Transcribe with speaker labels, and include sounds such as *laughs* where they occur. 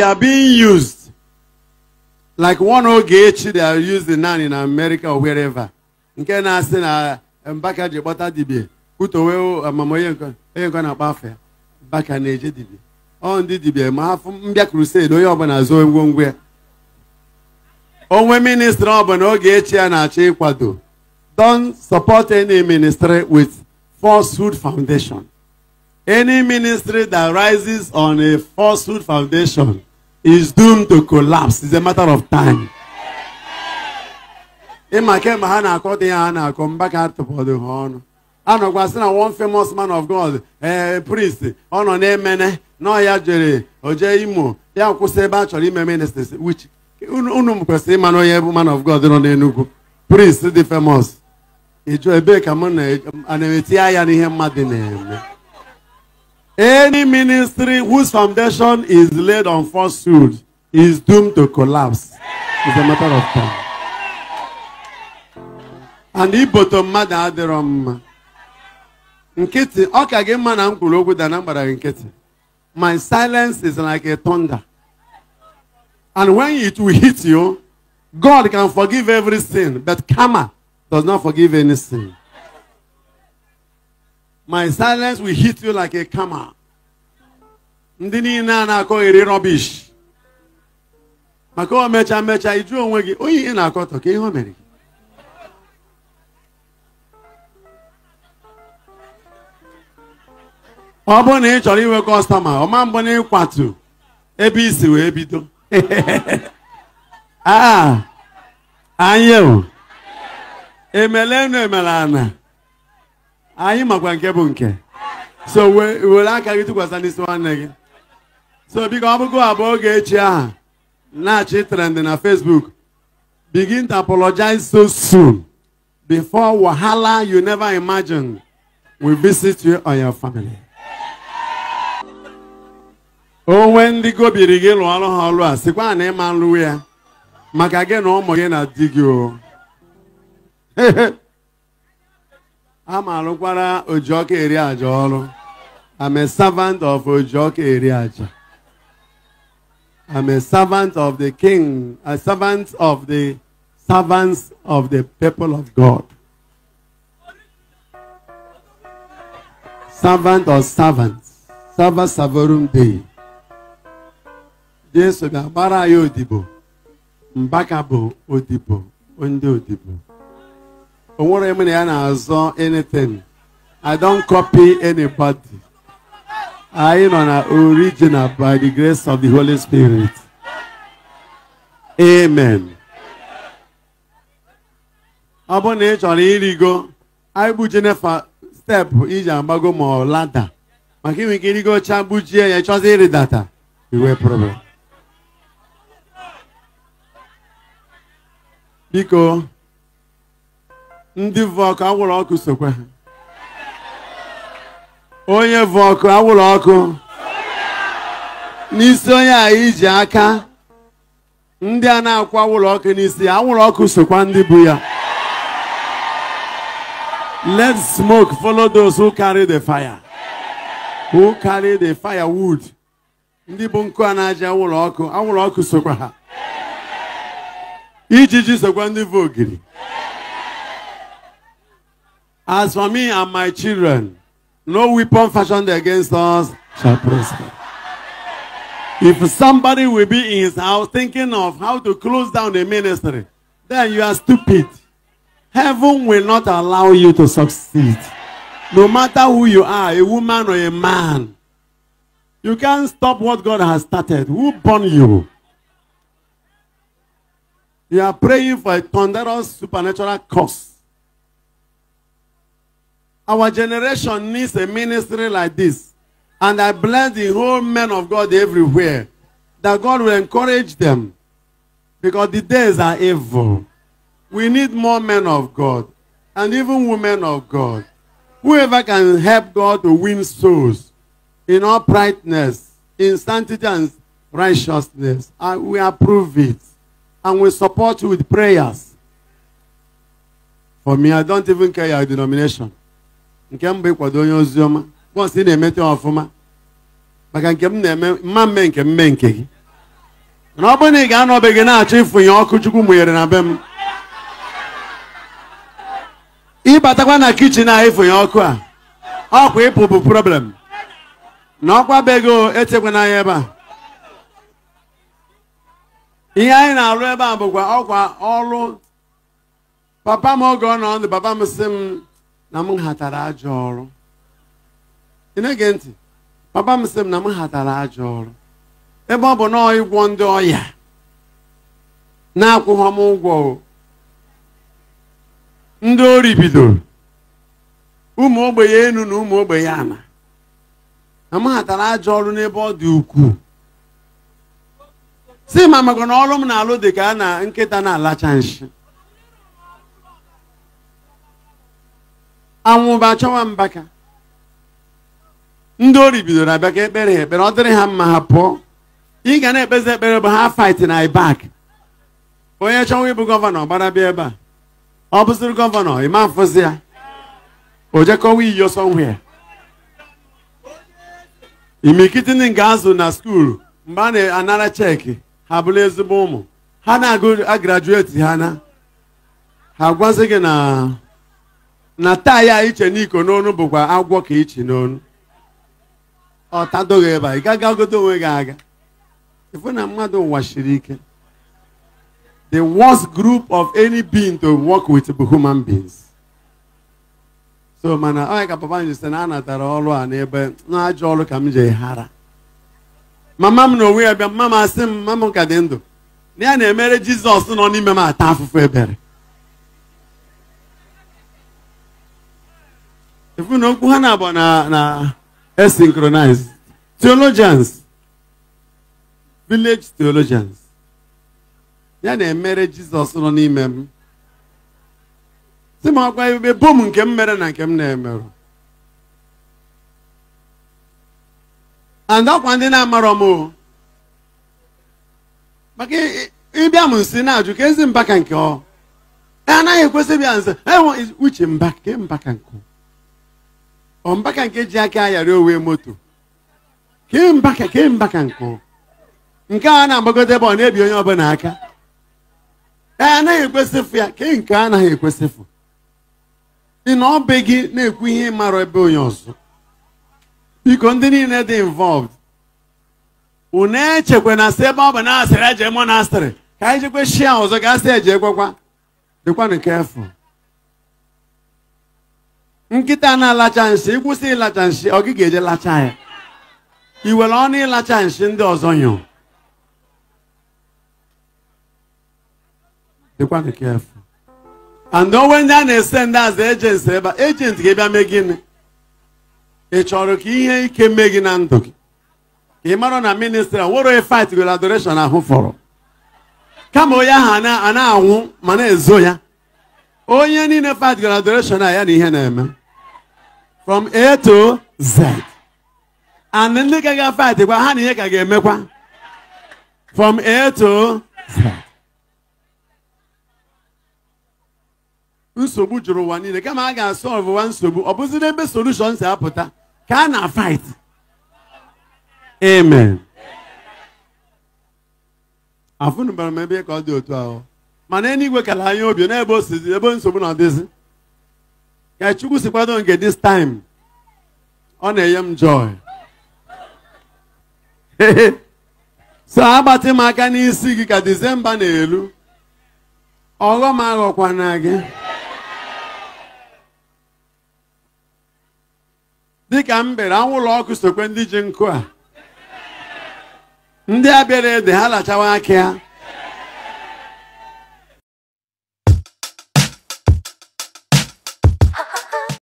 Speaker 1: they are being used. Like one Ogechi, they are using now in America or wherever. Nke na-asị na eh, Mbaka ji kpọta dibia kwutowe amam eh, onye nkọ na-akpọ afọ ya Mbaka na-eje dibia ọ ndị dibia ma afụ mbịa krused onye ọbụla zoo ngwongwo ya onwe ministri ọbụla Ogechi ya na-achọ ịkwado don support any ministry with falsehood foundation any ministry that rises on a falsehood foundation is doomed to collapse. It's a matter of time. ịma kemgbe ha na-akọ dị ya ha na-akọ mbaka ka atụpọdụ ha ọnụ a sị na one famous man of God ee eh, priest ọ nọ na-emene nọ ya jere oje imo ya kwụsị ebe a chọrọ ime ministries which unu kwesịrị ịma onye bụ man of God nọ n'Enugu priest dị famous ịjụ ebee ka mụ na-eti ya n'ihe mmadụ na-eme Any ministry whose foundation is laid on falsehood is doomed to collapse. It's a matter of time. And iboto mmadụ adịrọ mma. Nkịtị, ọ ka gị mma na m kwuru okwu da na mgbara gị nkịtị. My silence is like a thunder. And when it will hit you, God can forgive every sin, but karma does not forgive any sin. my silence will hit you like a camera ndị niile a na-akọghịrị rubbish maka o mecha mecha iju onwe gị onye ihe na-akọtọ ka ihe o mere gị ọ bụrụ na ị chọrọ inwe kọstọma ọma mbụ na ịkwatu ebe isi wee bido *laughs* ah, emele enu emelenu ana. anyị makwa nke bụ nke so were aka gị tụkwasị n'isi nwanne gị so biko ọ bụgo abụọ oge echi aha na-achị trend na Facebook begin to apologize so soon before wahala you never imagine will visit you or your family. onwe ndị gobiri gị lụọ ọrụ ha ọrụ a sikwa na ịma nlụwe ya maka gị na ụmụ gị na di gị o *laughs* amalụkwara Ojioka eri aja ọrụ I'm a servant of Ojioka eri aja I'm a servant of the king a servant of the servants of the people of God servant of servants serva savorum dei Jesu ga-agbara anyị odibo mbaka bụ odibo ndị odibo anything I don't copy anybody I am original by the grace of the Holy Spirit amen ọ bụrụ na ị chọrọ ịrịgo anyị gbujenefa steepụ iji agbago ma ọ lada maka inwe problem biko ndị vọkụ ọkụ anwụrụ ọkụ sokwa ha onye vọkụ ọkụ anwụrụ ọkụ n'isi onye a iji aka ndị a na-akwụ anwụrụ ọkụ n'isi ya anwụrụ ọkụ sokwa ndị bụ ya let smoke follow those who carry the fire who carry the firewood ndị bụ nkụ a na-aja anwụrụ ọkụ anwụrụ ọkụ sokwa ha ijiji sokwa ndị bụ ogiri As for me and my children, no weapon fashioned against us shall prosper. If somebody will be in his house thinking of how to close down the ministry, then you are stupid. Heaven will not allow you to succeed. No matter who you are, a woman or a man, you can't stop what God has started. Who born you? You are praying for a thunderous supernatural cause. Our generation needs a ministry like this. And I bless the whole men of God everywhere. That God will encourage them. Because the days are evil. We need more men of God. And even women of God. Whoever can help God to win souls in uprightness, in sanctity and righteousness. I we approve it. And we support you with prayers. For me, I don't even care your denomination. nke mbụ bụ ịkwado onye oziọma ị na-emete ọfụma maka nke m na-eme mma mme nke mme nke gị na ọ bụrụ na ị ga gị na-achọ ịfụnye ọkụ chukwu mụnyere na be m ịbatakwa na kichin a ịfụnye ọkụ a ọkwa ịpụ bụ problem na ọkwa bego etekwa na ebe a ihe anyị na-alụ ebe a bụkwa ọkwa ọrụ papa m oge ọ nọ ndụ papa m sị m na m hatara ajọ ọrụ ị na-ege ntị papa m sị m na m hatara ajọ ọrụ ebe ọ bụ na ịgwọ ndị ọya na-akwụghọ m ụgwọ ndị ori bidoro ụmụ ogbenye enu na ụmụ ogbenye ana na m hatara ajọ ọrụ n'ebe ọ dị ukwuu si ma maka na ọrụ m na-alụ dị ka a na nkịta na-alacha nshi anwụ bụ achọwa mbaka ndị ori bidoro abịa ka ekpere ha ekpere ọ dịrị ha mma ha pụọ ị ga na-ekpezi ekpere bụ ha fight na ibak onye chọwa ịbụ gọvanọ gbara bịa ebe a ọ bụziri gọvanọ ma mfụzi ya ojekọwa iyi ọsọ ya imikitini ga azụ na skuulu mgbe a na-anara cheki ha bụrụ ezigbo ụmụ ha na-agụ agrajueti ha na ha gwazi gị na na taa ya iche n'iko n'onu bụkwa agwọ ka iche e n'onu ọ tadoghị ebe a ị gaghị onwe gị aga ifu na mmadụ nwashiri ike the worst group of any being to work with human beings so mana onye ka papa m sị na a natara ọrụ a n'ebe n'ajọ ọrụ ka m ji hara mama m na onwe ya bịa mama m asị m mama m ka dị ndụ na ya na-emere jizọs nọ n'ime m ata afụfụ ebere efu na okwu ha na-abụ na na asynchronized theologians village theologians ya na-emere jizọs nọ n'ime m si m ọkwa ebe bom nke m mere na nke m na-emerụ and ọkwa ndị na-amarọ m maka ịbịa m nsi na-ajụ ka ezi mbaka nke ọ anaghị ekwesị bịa nze uche mbaka mbaka nke mbaka nke ji aka ayara owe moto kembaka mbaka nke nke a na-agbagote ebe ọ na-ebi onye ọbụla aka ee anaghị ekwesịfụ ya ke nke anaghị ekwesịfụ dị na ọ be gị na-ekwu ihe mara ebe onye ọzọ biko ndị niile dị involved unu echekwa na sị ebe ọ bụ na asịrị eje monastịrị ka anyị jekwe shia ọzọ ga asị eje ekwekwa dịkwanụ kefụ nkịta na-alacha nshi ịkwụsị ịlacha nshi ọ gị ga-eje lacha ya iwere were ọnụ ịlacha nshi ndị ọzọ nyụ dịkwanụ kefu and onwe ndị a na-ese ndị azụ ejenti ebe a ejenti ga bịa mee gịnị ị chọrọ ka ihe ike mee gị na ndụ gị ị mara na ministri nwere onye fight gwere adoreshon ahụ fọrọ kama onye ahụ a na-anwụ ma na-ezo ya onye niile fight gwere adoreshon a ya na ihe na-eme from A to Z and ndị ka ga kwa ha na ihe ka ga-emekwa from A to Z nsogbu juru ụwa niile kama a ga-asọlvụ nsogbu ọ bụzi n'ebe solushon si apụta ka a na fight amen afụnụbara m ebe ka ọ dị otu ahụ mana enigwe kara anya obi n'ebe o ebe nsogbu na-adịzi ka Chukwu si kwado nke this time ọ na-enye m joy *laughs* so agbatị m aka n'isi gị ka Disemba na-elu ọghọm na gị dịka m bere anwụlọ ọkụ sokwe ndị ji nkụ a ndị abịara ede ha lachawa aka ya